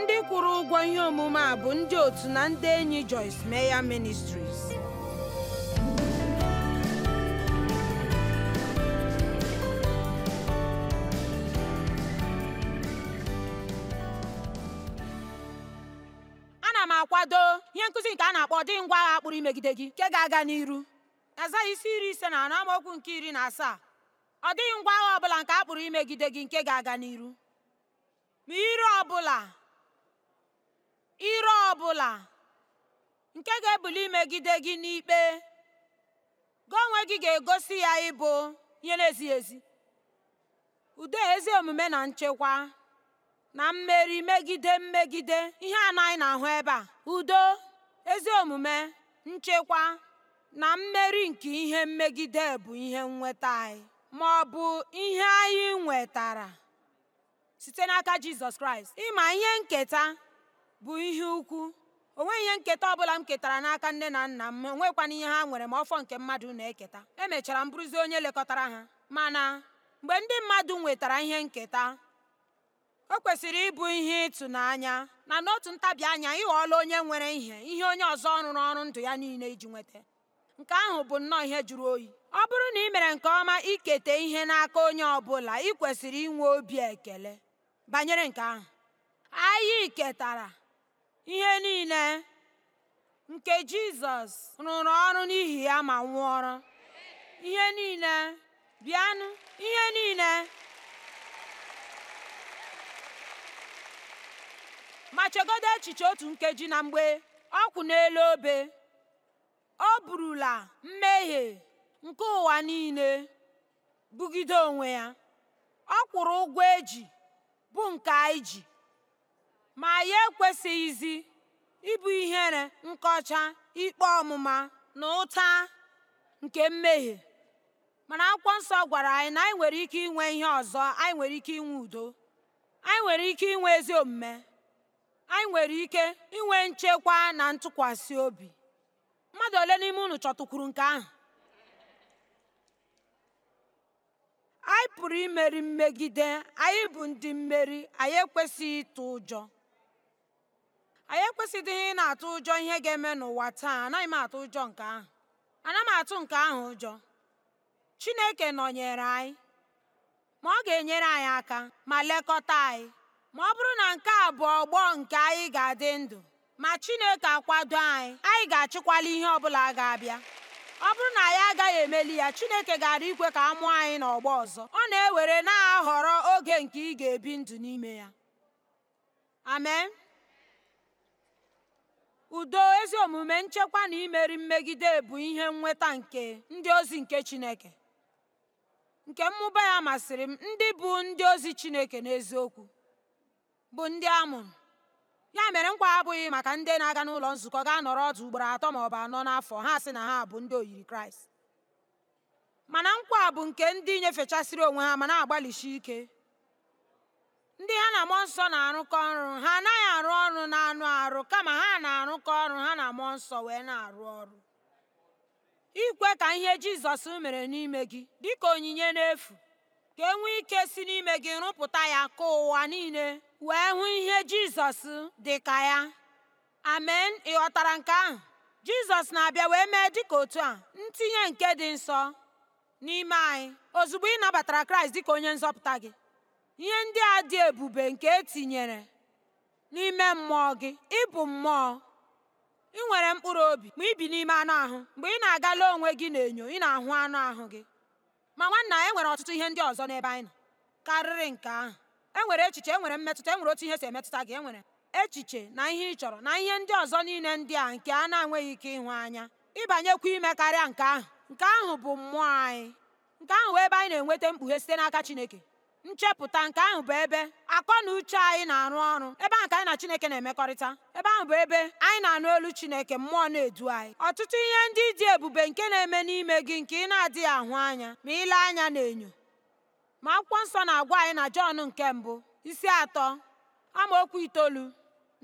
ndị kwụrụ ụgwọ ihe omume a bụ ndị otu na ndị enyi Joyce Meyer Ministries na m akwado ihe nkụzi nke a na-akpọ dị ngwa agha kpụrụ imegide gị nke ga-aga n'iru azaghị isi iri ise na anọ amaokwu nke iri na asaa ọ dịghị ngwa agha ọbụla nke a kpụrụ imegide gị nke ga-aga n'iru ma ire ọbụla Ire ọ bụla nke ga-ebuli imegide gị n'ikpe gị onwe gị ga-egosi ya ịbụ ihe na-ezighị ezi udo ezi omume na nchekwa na mmeri megide mmegide ihe anaghị na-ahụ ebe a udo ezi omume nchekwa na mmeri nke ihe mmegide bụ ihe nnweta anyị ma ọ bụ ihe anyị nwetara site n'aka Jizọs Kraịst ịma ihe nketa bụ ihe ukwu o nweghị ihe nketa ọbụla m ketara n'aka nne na nna m nwekwana ihe ha nwere ma ọfọ nke mmadụ na-eketa emechara m bụrụzi onye lekọtara ha mana mgbe ndị mmadụ nwetara ihe nketa o kwesịrị ịbụ ihe ịtụnanya na n'otu ntabi anya ịghọọla onye nwere ihe ihe onye ọzọ rụrụ ọrụ ndụ ya niile iji nweta nke ahụ bụ nnọọ ihe jụrụ oyi ọ bụrụ na ị mere nke ọma ikete ihe n'aka onye ọbụla ị kwesịrị inwe obi ekele banyere nke ahụ anyị ketara ihe niile nke jizọs rụrụ ọrụ n'ihi ya ma nwụọrụ. ihe niile bịanụ ihe niile ma chegodo echiche otu nkeji na mgbe ọ kwụ n'elu obe ọ bụrụla mmehie nke ụwa niile bugide onwe ya ọ kwụrụ ụgwọ eji bụ nke anyị ji ma anyị ekwesịghịzi ịbụ ihere nkọcha ikpe ọmụma na ụta nke mmehie mana akwụkwọ nsọ gwara anyị na anyị nwere ike inwe ihe ọzọ anyị nwere ike inwe udo anyị nwere ike inwe ezi omume anyị nwere ike inwe nchekwa na ntụkwasị obi mmadụ ole n'ime unu chọtụkwuru nke ahụ anyị pụrụ imeri mmegide anyị bụ ndị mmeri anyị ekwesịghị ịtụ ụjọ anyị ekwesịdịghị ị na-atụ ụjọ ihe ga-eme n'ụwa taa anaghị m atụ ụjọ nke ahụ ana m atụ nke ahụ ụjọ chineke nọnyere anyị ma ọ ga-enyere anyị aka ma lekọta anyị ma ọ bụrụ na nke a bụ ọgbọ nke anyị ga-adị ndụ ma chineke akwado anyị anyị ga-achịkwala ihe ọbụla ga-abịa ọ bụrụ na anyị agaghị emeli ya chineke gara ikwe ka a mụọ anyị n'ọgbọ ọzọ ọ na-ewere na-ahọrọ oge nke ị ga-ebi ndụ n'ime ya amen udo ezi omume nchekwa na imeri mmegide bụ ihe nweta nke ndị ozi nke chineke nke mmụba ya masịrị m ndị bụ ndị ozi chineke n'eziokwu bụ ndị a mụrụ ya mere nkwa abụghị maka ndị na-aga n'ụlọ nzukọ ga nọrọ ọdụ ugboro atọ ma ọ bụ anọ n'afọ ha sị na ha bụ ndị oyiri kraịst mana nkwa bụ nke ndị nyefechasịrị onwe ha ma na-agbalịsi ike ndị ha na mmụọ nsọ na-arụkọ ọrụ ha anaghị arụ ọrụ na anụ arụ kama ha na-arụkọ ọrụ ha na mmụọ nsọ wee na-arụ ọrụ ikwe ka ihe jizọs mere n'ime gị dịka onyinye n'efu ka e nwee ike si n'ime gị rụpụta ya ka ụwa niile wee hụ ihe jizọs dị ka ya amen ị ghọtara nke ahụ jizọs na-abịa wee mee dịka otu a ntinye nke dị nsọ n'ime anyị ozugbo ị nabatara kraịst ka onye nzọpụta gị Ihe ndị a dị ebube nke e tinyere n'ime mmụọ gị, ị bụ mmụọ. ị nwere mkpụrụ obi ma ibi bi n'ime anụ ahụ. Mgbe ị na-agala onwe gị n'enyo, ị na-ahụ anụ ahụ gị. Ma nwanna e nwere ọtụtụ ihe ndị ọzọ n'ebe anyị nọ karịrị nke ahụ. E nwere echiche, e nwere mmetụta, e nwere otu ihe si emetụta gị, e nwere echiche na ihe ị chọrọ na ihe ndị ọzọ niile ndị a nke a na-enweghị ike ịhụ anya. Ịbanyekwa ime karịa nke ahụ. Nke ahụ bụ mmụọ anyị. Nke ahụ bụ ebe anyị na-enweta mkpughe site n'aka Chineke. nchepụta nke ahụ bụ ebe akọ na uche anyị na-arụ ọrụ ebe ahụ ka anyị na chineke na-emekọrịta ebe ahụ bụ ebe anyị na-anụ olu chineke mmụọ na-edu anyị ọtụtụ ihe ndị dị ebube nke na-eme n'ime gị nke ị na-adịghị ahụ anya ma ile anya na-enyo. ma akwụkwọ nsọ na-agwa anyị na jọn nke mbụ isi atọ okwu itoolu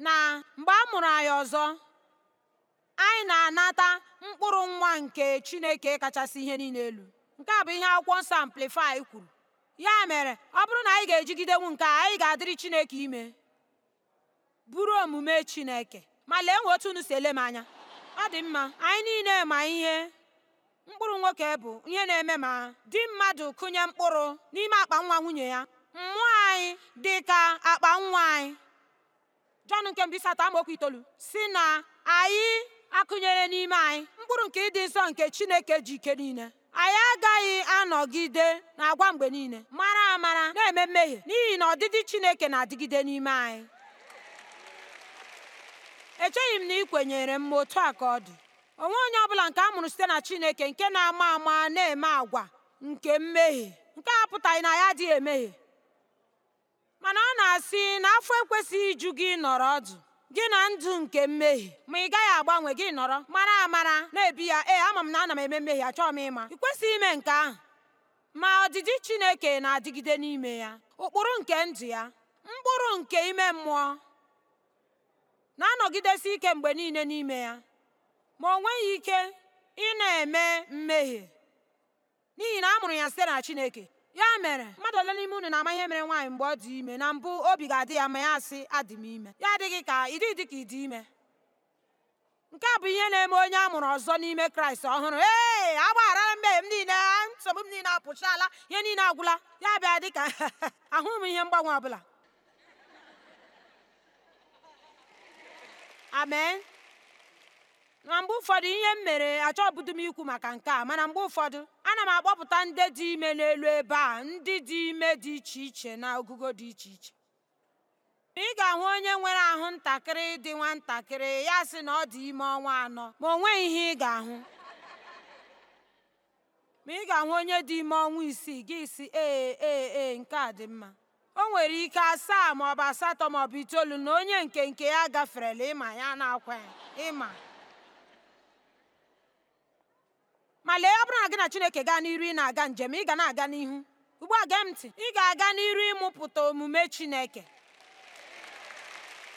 na mgbe a mụrụ anyị ọzọ anyị na-anata mkpụrụ nwa nke chineke kachasị ihe niile elu nke a bụ ihe akwụkwọ nsọ amplifai kwuru Ya mere, ọ bụrụ na anyị ga-ejigidenwu nke a, anyị ga-adịrị Chineke ime, bụrụ omume Chineke. Ma lee nwe otu unu si ele m anya. Ọ dị mma, anyị niile ma ihe mkpụrụ nwoke bụ ihe na-eme ma di mmadụ kụnye mkpụrụ n'ime akpa nwa nwunye ya. Mmụọ anyị dị ka akpa nwa anyị. Jọn nke mbụ isi atọ itoolu si na anyị akụnyere n'ime anyị mkpụrụ nke ịdị nsọ nke Chineke ji ike niile. anyị agaghị anọgide na agwa mgbe niile mara amara na-eme mmehie n'ihi na ọdịdị Chineke na-adịgide n'ime anyị echeghị m na ị kwenyere m ma otu a ka ọ dị onwe onye ọbụla nke a mụrụ site na Chineke nke na-ama ama na-eme agwa nke mmehie nke a pụtaghị na ya adịghị emehie mana ọ na-asị na afọ ekwesịghị iju gị nọrọ ọdụ gị na ndụ nke mmehie ma ị gaghị agbanwe gị nọrọ mara amara na-ebi ya ee ama m na ana m eme mmehie achọọ m ịma ị kwesịghị ime nke ahụ ma ọdịdị Chineke na-adịgide n'ime ya ụkpụrụ nke ndụ ya mkpụrụ nke ime mmụọ na-anọgidesi ike mgbe niile n'ime ya ma o nweghị ike ị na-eme mmehie n'ihi na a mụrụ ya site na Chineke ya mere mmadụ ole n'ime unu na-ama ihe mere nwaanyị mgbe ọ dị ime na mbụ obi ga-adị ya ma ya asị adị m ime ya adịghị ka ịdị dị ka ịdị ime nke a bụ ihe na-eme onye a mụrụ ọzọ n'ime kraịst ọhụrụ ee agbaghara mmehie m niile nsogbu m niile apụchaala ihe niile agwụla ya bịa dị ka ahụghị m ihe mgbanwe ọbụla amen na mgbe ụfọdụ ihe m mere achọbudu m ikwu maka nke a mana mgbe ụfọdụ ana m akpọpụta ndị dị ime n'elu ebe a ndị dị ime dị iche iche na ogugo dị iche iche ị ga-ahụ onye nwere ahụ ntakịrị dị nwatakịrị ya sị na ọ dị ime ọnwa anọ ma o nweghị ihe ị ga-ahụ ma ị ga-ahụ onye dị ime ọnwa isii gị si ee ee ee nke a dị mma o nwere ike asaa maọbụ asatọ maọbụ itoolu na onye nke nke ya gaferela ịma ya na-akwa ịma ma lee ọ bụrụ na gị na chineke gaa n'iru ị na-aga njem ị ga na-aga n'ihu ugbu a gee m ntị ị ga-aga n'iru ịmụpụta omume chineke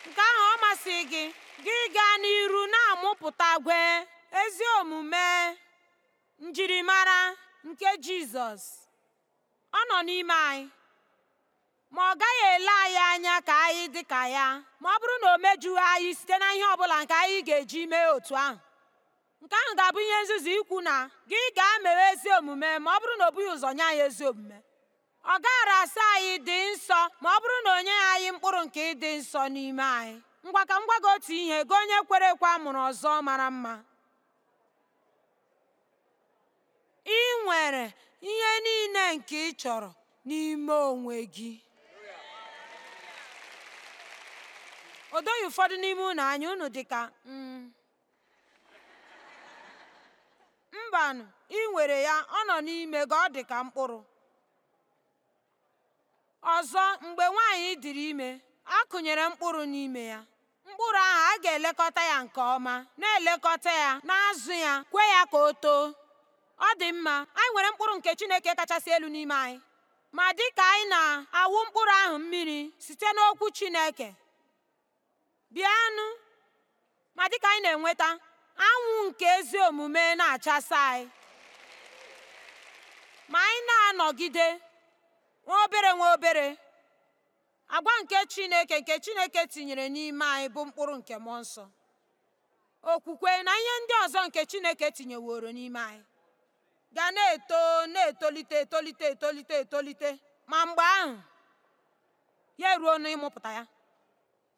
nke ahụ ọ masị gị gị gaa n'iru na-amụpụta gwe ezi omume njirimara nke jizọs ọ nọ n'ime anyị ma ọ gaghị ele anyị anya ka anyị dị ka ya ma ọ bụrụ na o mejughị anyị site na ihe ọ bụla nke anyị ga-eji mee otu ahụ nke ahụ ga-abụ ihe nzuzu ikwu na gị ga mewe ezi omume ma ọ bụrụ na ọ bụghị ụzọ nye anyị ezi omume ọ gaara asa anyị dị nsọ ma ọ bụrụ na onye anyị mkpụrụ nke ịdị nsọ n'ime anyị ngwa ka m gwa otu ihe gị onye kwere ekwe a mụrụ ọzọ mara mma ị nwere ihe niile nke ị chọrọ n'ime onwe gị o doghị ụfọdụ n'ime unu anya unu dịka mm, mbanụ ị nwere ya ọ nọ n'ime gị ọ dị ka mkpụrụ ọzọ mgbe nwaanyị dịrị ime a kụnyere mkpụrụ n'ime ya mkpụrụ ahụ a ga-elekọta ya nke ọma na-elekọta ya na-azụ ya kwe ya ka o too ọ dị mma anyị nwere mkpụrụ nke Chineke kachasị elu n'ime anyị ma dị ka anyị na-awụ mkpụrụ ahụ mmiri site n'okwu Chineke bịanụ ma dịka anyị na-enweta anwụ nke ezi omume na-achasa anyị ma anyị na-anọgide nwa obere nwa obere agwa nke chineke nke chineke tinyere n'ime anyị bụ mkpụrụ nke mmụọ nsọ okwukwe na ihe ndị ọzọ nke chineke tinyeworo n'ime anyị ga na-eto na-etolite etolite etolite etolite ma mgbe ahụ ya eruo n'ịmụpụta ya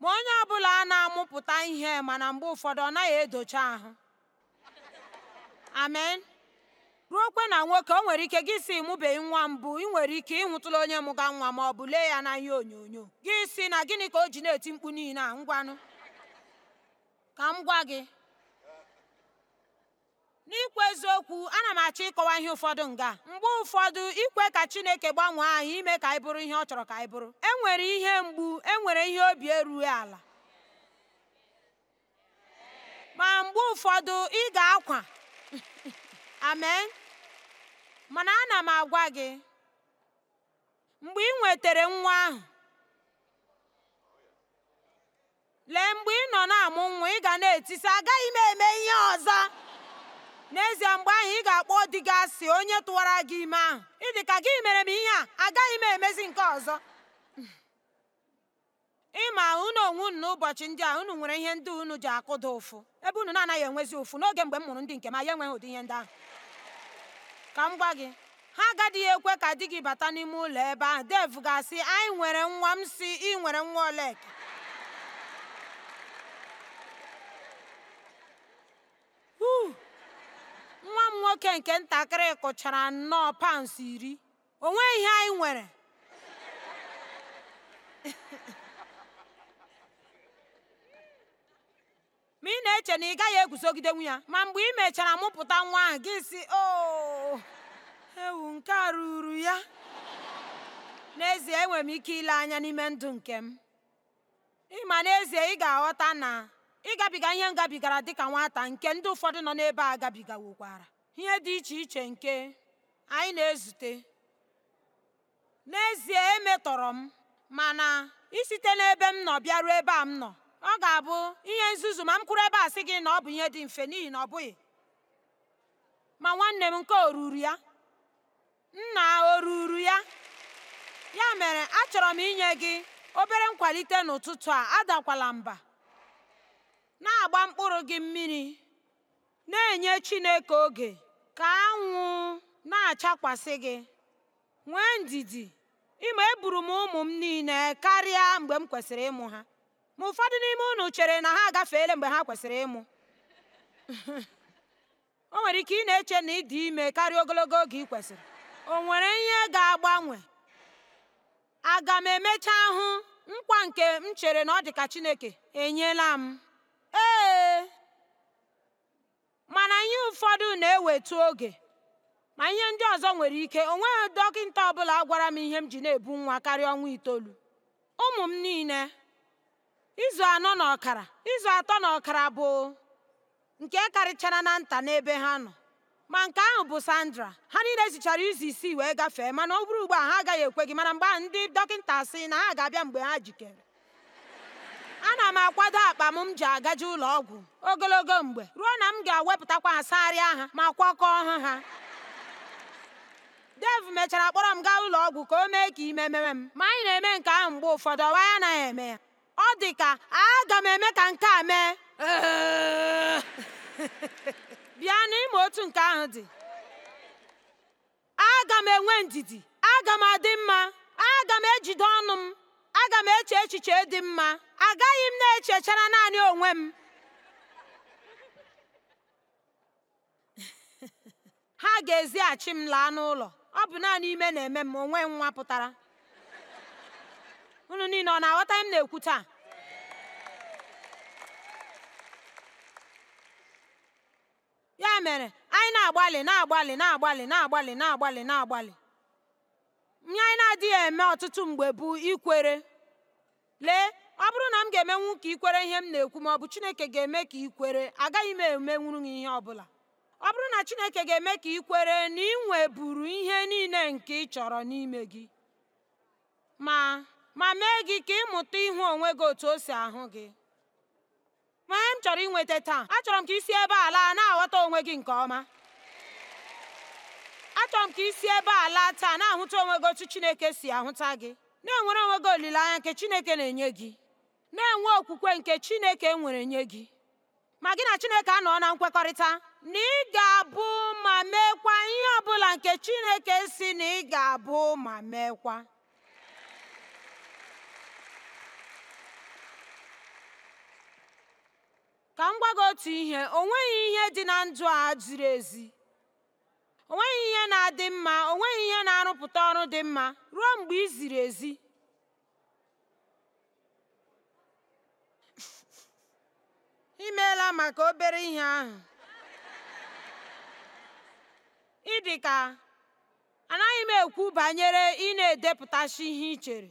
ma onye ọbụla a na-amụpụta ihe mana mgbe ụfọdụ ọ naghị edocha ahụ amen ruokwe na nwoke o nwere ike gị si mụbeghị nwa mbụ ị nwere ike ịnwụtụla onye mụga nwa ma ọ bụ lee ya na ihe onyonyo gị si na gịnị ka o ji na-eti mkpu niile a ngwanụ ka m gwa gị n'ikwu eziokwu ana m achọ ịkọwa ihe ụfọdụ nga mgbe ụfọdụ ikwe ka chineke gbanwee anyị ime ka anyị bụrụ ihe ọ chọrọ ka anyị bụrụ enwere ihe mgbu enwere ihe obi erughị ala ma mgbe ụfọdụ ị ga-akwa amen mana ana m agwa gị mgbe ị nwetara nwa ahụ lee mgbe ị nọ na-amụ nwa ị ga na-etisa agaghị m eme ihe ọzọ n'ezie mgbe ahụ ị ga-akpọ di gị asị onye tụwara gị ime ahụ ịdị ka gị mere m ihe a agaghị m emezi nke ọzọ ịma unu onwe unu n'ụbọchị ndị a unu nwere ihe ndị unu ji akụda ụfụ ebe unu na-anaghị enwezi ụfụ n'oge mgbe m mụrụ ndị nke m ya enweghị ụdị ihe ndị ahụ ka m gwa gị ha agadịghị ekwe ka di gị bata n'ime ụlọ ebe ahụ dev ga anyị nwere nwa m si ị nwere nwa oleka nwoke nke ntakịrị kụchara nnọọ paụnsụ iri o nweghị ihe anyị nwere ma ị na-eche na ị gaghị eguzogidenwu ya ma mgbe ị mechara mụpụta nwa ahụ gị si o oh, ewu nke a ruru ya n'ezie enwere m ike ile anya n'ime ndụ nke m ịma n'ezie ị ga-aghọta na ịgabiga ihe m gabigara dịka nwata nke ndị ụfọdụ nọ n'ebe a gabigawokwara ihe dị iche iche nke anyị na-ezute n'ezie emetọrọ m mana isite n'ebe m nọ bịaruo ebe a m nọ ọ ga-abụ ihe nzuzu ma m kwuru ebe a sị gị na ọ bụ ihe dị mfe n'ihi na ọ bụghị ma nwanne m nke oruru ya nna oruru ya ya mere achọrọ m inye gị obere nkwalite n'ụtụtụ a adakwala mba na-agba mkpụrụ gị mmiri na-enye Chineke oge ka anwụ na-achakwasị gị nwee ndidi ịma eburu m ụmụ m niile karịa mgbe m kwesịrị ịmụ ha ma ụfọdụ n'ime unu chere na ha agafeela mgbe ha kwesịrị ịmụ o nwere ike ị na-eche na ịdị ime karịa ogologo oge ị kwesịrị o nwere ihe ga-agbanwe aga m emecha hụ nkwa nke m chere na ọ dị ka chineke enyela m ee mana ihe ụfọdụ na ewetu oge ma ihe ndị ọzọ nwere ike o nweghị dọkịta ọbụla gwara m ihe m ji na-ebu nwa karịa ọnwa itoolu ụmụ m niile izu anọ na ọkara izu atọ na ọkara bụ nke karịchara na nta n'ebe ha nọ ma nke ahụ bụ Sandra ha niile zichara izu isii wee gafee mana ọ bụrụ ugbu a ha agaghị ekwe gị mana mgbe ahụ ndị dọkịta sị na ha ga-abịa mgbe ha jikere ana m akwado akpa m ji agaje ụlọ ọgwụ ogologo mgbe ruo na m ga-ewepụtakwa asagharịa ha ma kwakọọ ha ha dev mechara kpọrọ m gaa ụlọ ọgwụ ka o mee ka ime mere m ma anyị na-eme nke ahụ mgbe ụfọdụ ọwa ya anaghị eme ya ọ dị ka aga m eme ka nke a mee bịa n'ime otu nke ahụ dị aga m enwe ndidi aga m adị mma aga m ejide ọnụ m aga m eche echiche dị mma agaghị m na-echechara naanị onwe m ha ga-ezighachi m laa n'ụlọ ọ bụ naanị ime na-eme m onwe nwa pụtara unu niile ọ na-aghọta m na-ekwu taa ya mere anyị na-agbalị na-agbalị na-agbalị na-agbalị na-agbalị na-agbalị ihe anyị na-adịghị eme ọtụtụ mgbe bụ ikwere lee ọ bụrụ na m ga-emenwu ka ikwere ihe m na-ekwu ma ọ bụ chineke ga-eme ka ikwere agaghị m emenwuru gị ihe ọbụla ọ bụrụ na chineke ga-eme ka ikwere na ị nweburu ihe niile nke ị chọrọ n'ime gị ma ma mee gị ka ịmụta ịhụ onwe gị otu o si ahụ gị ma m chọrọ inweta taa achọrọ m ka isi ebe a laa na-aghọta onwe gị nke ọma achọrọ m ka isi ebe ala taa na-ahụta onwe gị otu Chineke si ahụta gị na-enwere onwe gị olileanya nke Chineke na-enye gị na-enwe okwukwe nke Chineke nwere nye gị ma gị na Chineke anọọ na nkwekọrịta na ị ga-abụ ma meekwa ihe ọbụla nke Chineke si na ị ga-abụ ma meekwa ka m gwa gị otu ihe o nweghị ihe dị na ndụ a ziri ezi O nweghị ihe na-adị mma, o nweghị ihe na-arụpụta ọrụ dị mma ruo mgbe i ezi. Imeela maka obere ihe ahụ. Ị ka anaghị m ekwu banyere ị na edepụtasị ihe i chere.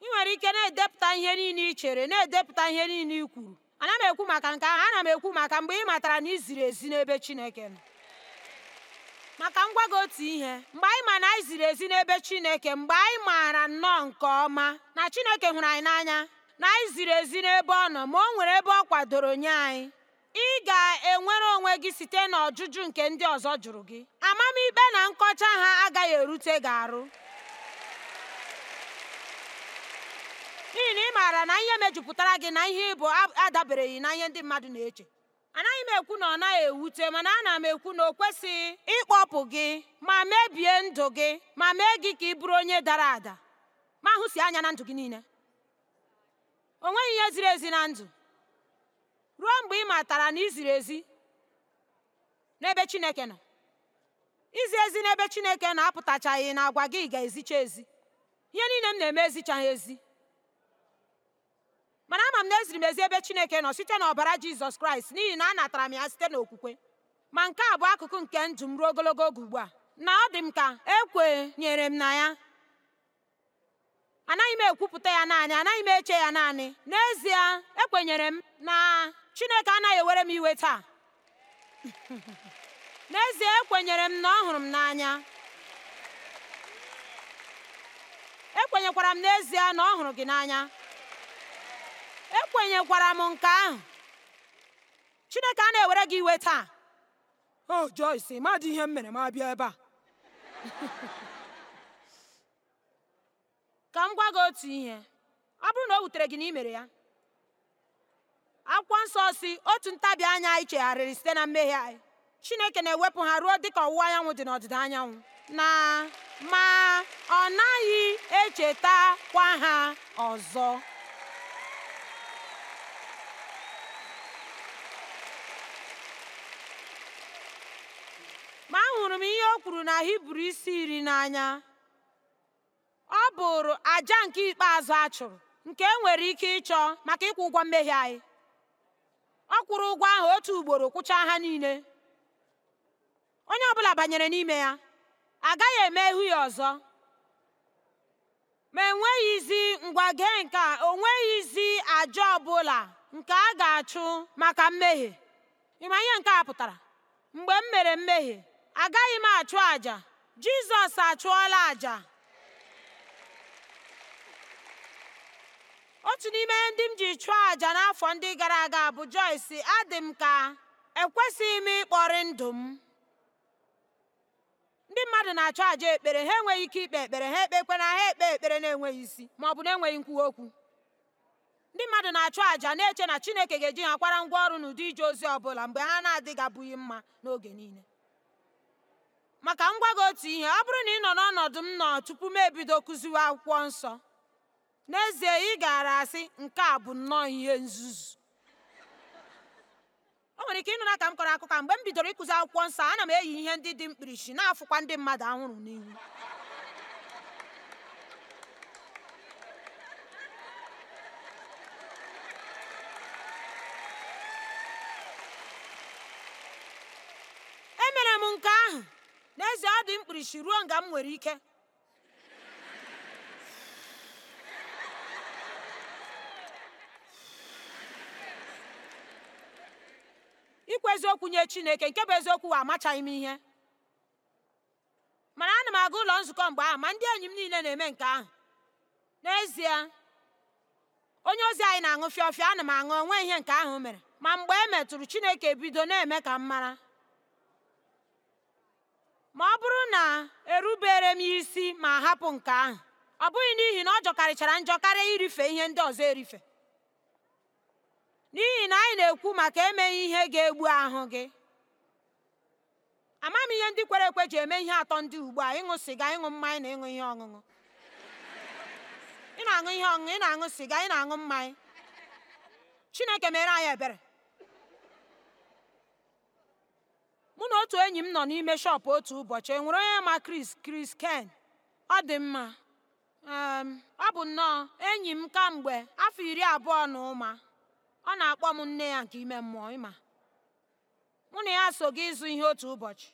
Ị nwere ike na-edepụta ihe niile i chere, na-edepụta ihe niile i kwuru. ana m ekwu maka nke ahụ, ana m ekwu maka mgbe ị matara na i ezi n'ebe Chineke nọ. maka ngwa gị otu ihe mgbe anyị ma na anyị ziri ezi n'ebe Chineke mgbe anyị maara nnọọ nke ọma na Chineke hụrụ anyị n'anya na anyị ziri ezi n'ebe ọ nọ ma o nwere ebe ọ kwadoro nye anyị ị ga-enwere onwe gị site n'ọjụjụ nke ndị ọzọ jụrụ gị amamikpe na nkọcha ha agaghị erute gị arụ n'ihi na ị maara na ihe mejupụtara gị na ihe ịbụ adabereghị na ihe ndị mmadụ na-eche anaghị m ekwu na ọ naghị ewute mana ana m ekwu na o kwesịghị ịkpọpụ gị ma mebie ndụ gị ma mee gị ka ị bụrụ onye dara ada ma ahụsi anya na ndụ gị niile o nweghị ihe ziri ezi na ndụ ruo mgbe ị matara na iziri ezi n'ebe Chineke nọ izi ezi n'ebe Chineke nọ apụtachaghị na agwa gị ga-ezicha ezi ihe niile m na-eme ezichaghị ezi mana ama m na eziri m ezi ebe chineke nọ site n'ọbara jizọs kraịst n'ihi na anatara m ya site n'okwukwe ma nke a bụ akụkụ nke ndụ m ruo ogologo oge ugbu a na ọ dị m ka ekwenyere m na ya anaghị m ekwupụta ya naanị anaghị m eche ya naanị n'ezie ekwenyere m na chineke anaghị ewere m iwe taa n'ezie ekwenyere m na ọ hụrụ m e m n'ezie na ọ hụrụ gị n'anya ekwenyekwara m nke ahụ chineke a na-ewere gị iwe taa o Joyce madụ ihe m mere ma bịa ebe a ka m gwa gị otu ihe ọ bụrụ na o wutere gị na imere ya akwụkwọ nsọ si otu ntabi anya anyị chegharịrị site na mmehie anyị chineke na-ewepụ ha ruo dị ka ọwụwa anyanwụ dị n'ọdịda anyanwụ na ma ọ naghị echetakwa ha ọzọ hụrụ m ihe o kwuru na hibru isi iri n'anya ọ bụrụ aja nke ikpeazụ a chụrụ nke e nwere ike ịchọ maka ịkwụ ụgwọ mmehie anyị ọ kwụrụ ụgwọ ahụ otu ugboro kwụchaa ha niile onye ọbụla banyere n'ime ya agaghị eme ihu ya ọzọ ma enweghịzi ngwa gee nke a o nweghịzi aja ọbụla nke a ga-achụ maka mmehie ịma ihe nke a pụtara mgbe m mere mmehie agaghị m achụ àjà Jizọs achụọla àjà otu n'ime ndị m ji chụọ àjà n'afọ ndị gara aga bụ Joyce adị m ka ekwesịghị m ịkpọrị ndụ m ndị mmadụ na-achụ àjà ekpere ha enweghị ike ikpe ekpere ha ekpekwe na ha ekpe ekpere na-enweghị isi ma ọ bụ na-enweghị nkwuwa okwu ndị mmadụ na-achụ àjà na-eche na Chineke ga-eji ha kwara ngwa ọrụ n'ụdị ije ozi ọ bụla mgbe ha na adịghị abụghị mma n'oge niile maka m gwa gị otu ihe ọ bụrụ na ị nọ n'ọnọdụ m nọ tupu m ebido kụziwe akwụkwọ nsọ n'ezie ị gaara asị nke a bụ nnọọ ihe nzuzu o nwere ike ịnụ na ka m kọrọ akụkọ mgbe m bidoro ịkụzi akwụkwọ nsọ ana m eyi ihe ndị dị mkpirisi na-afụkwa ndị mmadụ anwụrụ n'ihu akpịrịsị ruo nga m nwere ike ikwu eziokwu nye chineke nke bụ eziokwu wa amachaghị m ihe mana ana m aga ụlọ nzukọ mgbe ahụ ma ndị enyi m niile na-eme nke ahụ n'ezie onye ozi anyị na-aṅụ fịọfịọ ana m aṅụ onwe ihe nke ahụ mere ma mgbe e metụrụ chineke bido na-eme ka m mara ma ọ bụrụ na erubere m isi ma hapụ nke ahụ ọ bụghị n'ihi na ọ jọkarịchara njọ karịa irife ihe ndị ọzọ erife n'ihi na anyị na-ekwu maka emeghị ihe ga-egbu ahụ gị ama m ihe ndị kwere ekwe ji eme ihe atọ ndị ugbu a ịṅụ sịga ịṅụ mmanya na ịṅụ ihe ọṅụṅụ ị na-aṅụ ihe ọṅụṅụ ị na-aṅụ sịga ị na-aṅụ mmanya chineke mere anyị ebere mụ na otu enyi m nọ n'ime shọpụ otu ụbọchị enwere onye ma Chris Chris Ken ọ dị mma ọ bụ nnọọ enyi m kamgbe afọ iri abụọ na ụma ọ na-akpọ m nne ya nke ime mmụọ ịma mụ na ya so gị ịzụ ihe otu ụbọchị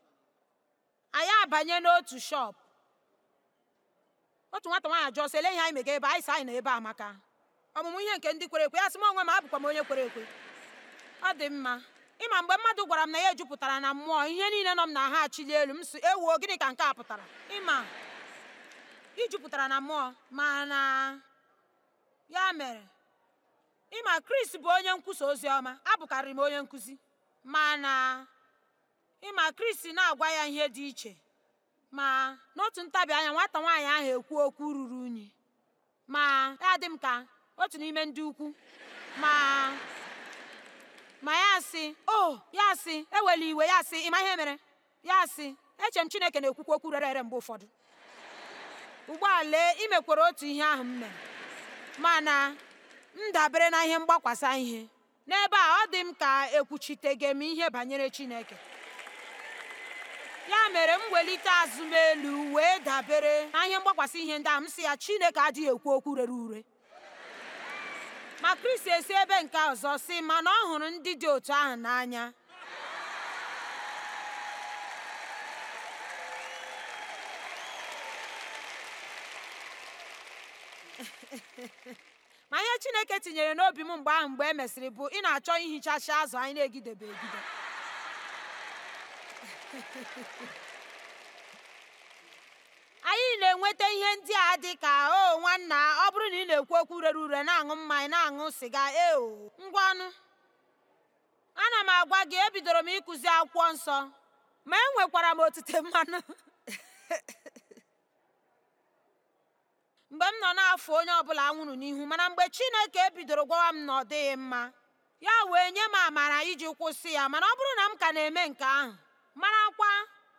anyị abanye n'otu shọpụ otu nwata nwaanyị jụọ sị ele ihe anyị mega ebe anyị sị anyị na ebe amaka ọmụmụ ihe nke ndị kwere ekwe ya sị m onwe m abụkwa m onye kwere ekwe ọ dị mma ịma mgbe mmadụ gwara m na ya jupụtara na mmụọ ihe niile nọ m na ha achili elu m si ewuo gịnị ka nke a pụtara ịma ijupụtara na mmụọ ma ya mere ịma Kris bụ onye nkwusa ozi ọma abụkarị m onye nkụzi ma na ịma na-agwa ya ihe dị iche ma n'otu ntabi anya nwata nwaanyị ahụ ekwu okwu ruru unyi ma ya dị m ka otu n'ime ndị ukwu ma ma ya asị o ya asị ewela iwe ya asị ịma ihe mere ya asị eche m chineke na-ekwukwa okwu rere ere mgbe ụfọdụ ụgbọala imekwara otu ihe ahụ m mere mana m dabere na ihe mgbakwasa ihe n'ebe a ọ dị m ka ekwuchitege m ihe banyere chineke ya mere m welite azụmelu elu wee dabere na ihe mgbakwasa ihe ndị a m si ya chineke adịghị ekwu okwu rere ure ma kristi esi ebe nke ọzọ si mana ọ hụrụ ndị dị otu ahụ n'anya ma ihe chineke tinyere n'obi m mgbe ahụ mgbe e mesịrị bụ ị na-achọ ihichachi azụ anyị na-egidebe egide na-enweta ihe ndị a dị ka o nwanna ọ bụrụ na ị na-ekwu okwu rere ure na-aṅụ mmanya na-aṅụ sịga eo ngwanụ ana m agwa gị ebidoro m ịkụzi akwụkwọ nsọ ma enwekwara m otite mmanụ mgbe m nọ na-afụ onye ọbụla nwụrụ n'ihu mana mgbe Chineke ebidoro gwawa m na ọ dịghị mma ya wee nye m amara iji kwụsị ya mana ọ bụrụ na m ka na-eme nke ahụ marakwa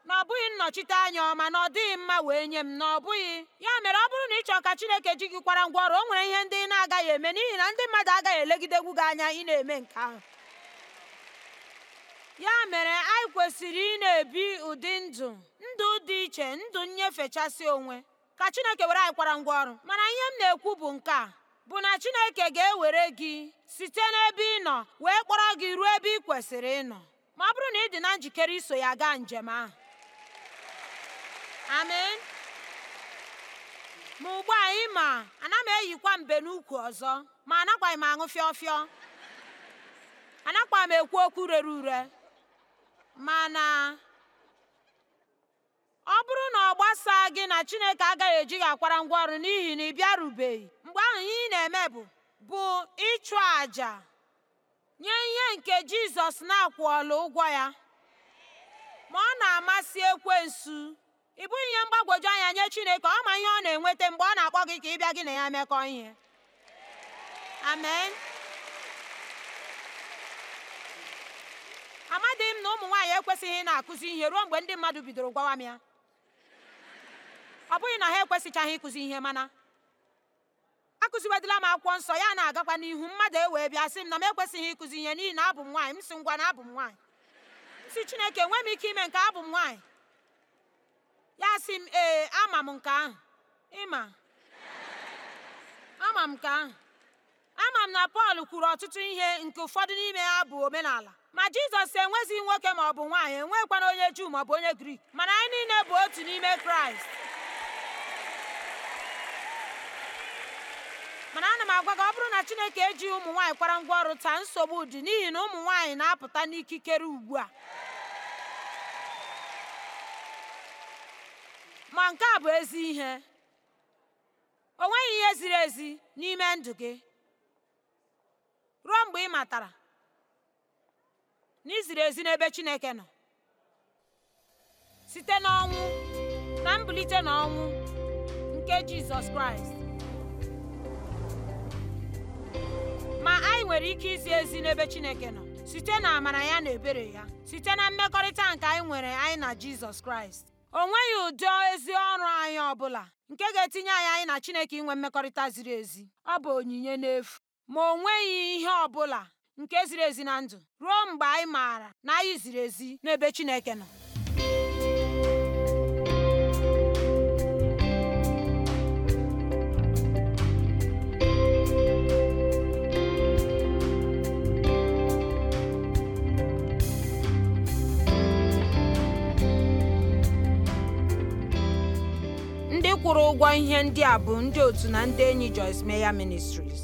na ọ bụghị nnọchite anya ọma na ọ dịghị mma wee nye m na ọ bụghị ya mere ọ bụrụ na ị chọọ ka Chineke ji gị kwara ngwa ọrụ o nwere ihe ndị ị na-agaghị eme n'ihi na ndị mmadụ agaghị elegidegwu gị anya ị na-eme nke ahụ ya mere anyị kwesịrị ị na-ebi ụdị ndụ ndụ dị iche ndụ nnyefechasị onwe ka Chineke were anyị kwara ngwa ọrụ mana ihe m na-ekwu bụ nke a bụ na Chineke ga-ewere gị site n'ebe ị nọ wee kpọrọ gị ruo ebe ị kwesịrị ịnọ ma ọ bụrụ na ị dị na njikere iso ya gaa njem ahụ amen ma ugbu a ị ma ana m eyikwa mbe n'ukwu ọzọ ma anakwaghị m aṅụ fịọfịọ anakwa m ekwu okwu rere ure mana ọ bụrụ na ọ gbasaa gị na chineke agaghị eji gị akwara ngwa ọrụ n'ihi na ị bịarubeghị mgbe ahụ ihe ị na-eme bụ bụ ịchụ àjà nye ihe nke jizọs na-akwụọla ụgwọ ya ma ọ na-amasị ekwensu ị bụghị ihe mgbagwoju anya nye chineke ọ ma ihe ọ na-enweta mgbe ọ na-akpọ gị ka ị bịa gị na ya mekọ ihe amen amadịghị m na ụmụ nwaanyị ekwesịghị na-akụzi ihe ruo mgbe ndị mmadụ bidoro gwawa m ya ọ bụghị na ha ekwesịchaghị ịkụzi ihe mana akụziwedịla m akwụkwọ nsọ ya na-agakwa n'ihu mmadụ ewee bịa sị m na m ekwesịghị ịkụzi ihe n'ihi na abụ m nwaanyị m sị ngwa na abụ m nwaanyị si chineke enwe m ike ime nke abụ m nwaanyị ya sị m ee ama m nke ahụ ịma ama m nke ahụ ama m na pọl kwuru ọtụtụ ihe nke ụfọdụ n'ime ha bụ omenala ma jizọs enweghịzi nwoke ma ọ bụ nwaanyị enwekwana onye juu maọbụ onye grik mana anyị niile bụ otu n'ime kraịst mana ana m agwa gị ọ bụrụ na chineke eji ụmụ nwaanyị kwara ngwa ọrụ taa nsogbu dị n'ihi na ụmụ nwaanyị na-apụta n'ikikere ugbu a ma nke a bụ ezi ihe o nweghị ihe ziri ezi n'ime ndụ gị ruo mgbe ị matara na iziri ezi n'ebe Chineke nọ site n'ọnwụ na mbilite n'ọnwụ nke Jizọs Kraịst ma anyị nwere ike izi ezi n'ebe Chineke nọ site na amara ya na ebere ya site na mmekọrịta nke anyị nwere anyị na Jizọs Kraịst O nweghị ụdị ezi ọrụ anyị ọbụla nke ga-etinye anyị anyị na Chineke inwe mmekọrịta ziri ezi. Ọ bụ onyinye n'efu. Ma o nweghị ihe ọbụla nke ziri ezi na ndụ ruo mgbe anyị maara na anyị ziri ezi n'ebe Chineke nọ. kwụrụ ụgwọ ihe ndị a bụ ndị otu na ndị enyi Joyce Meyer Ministries.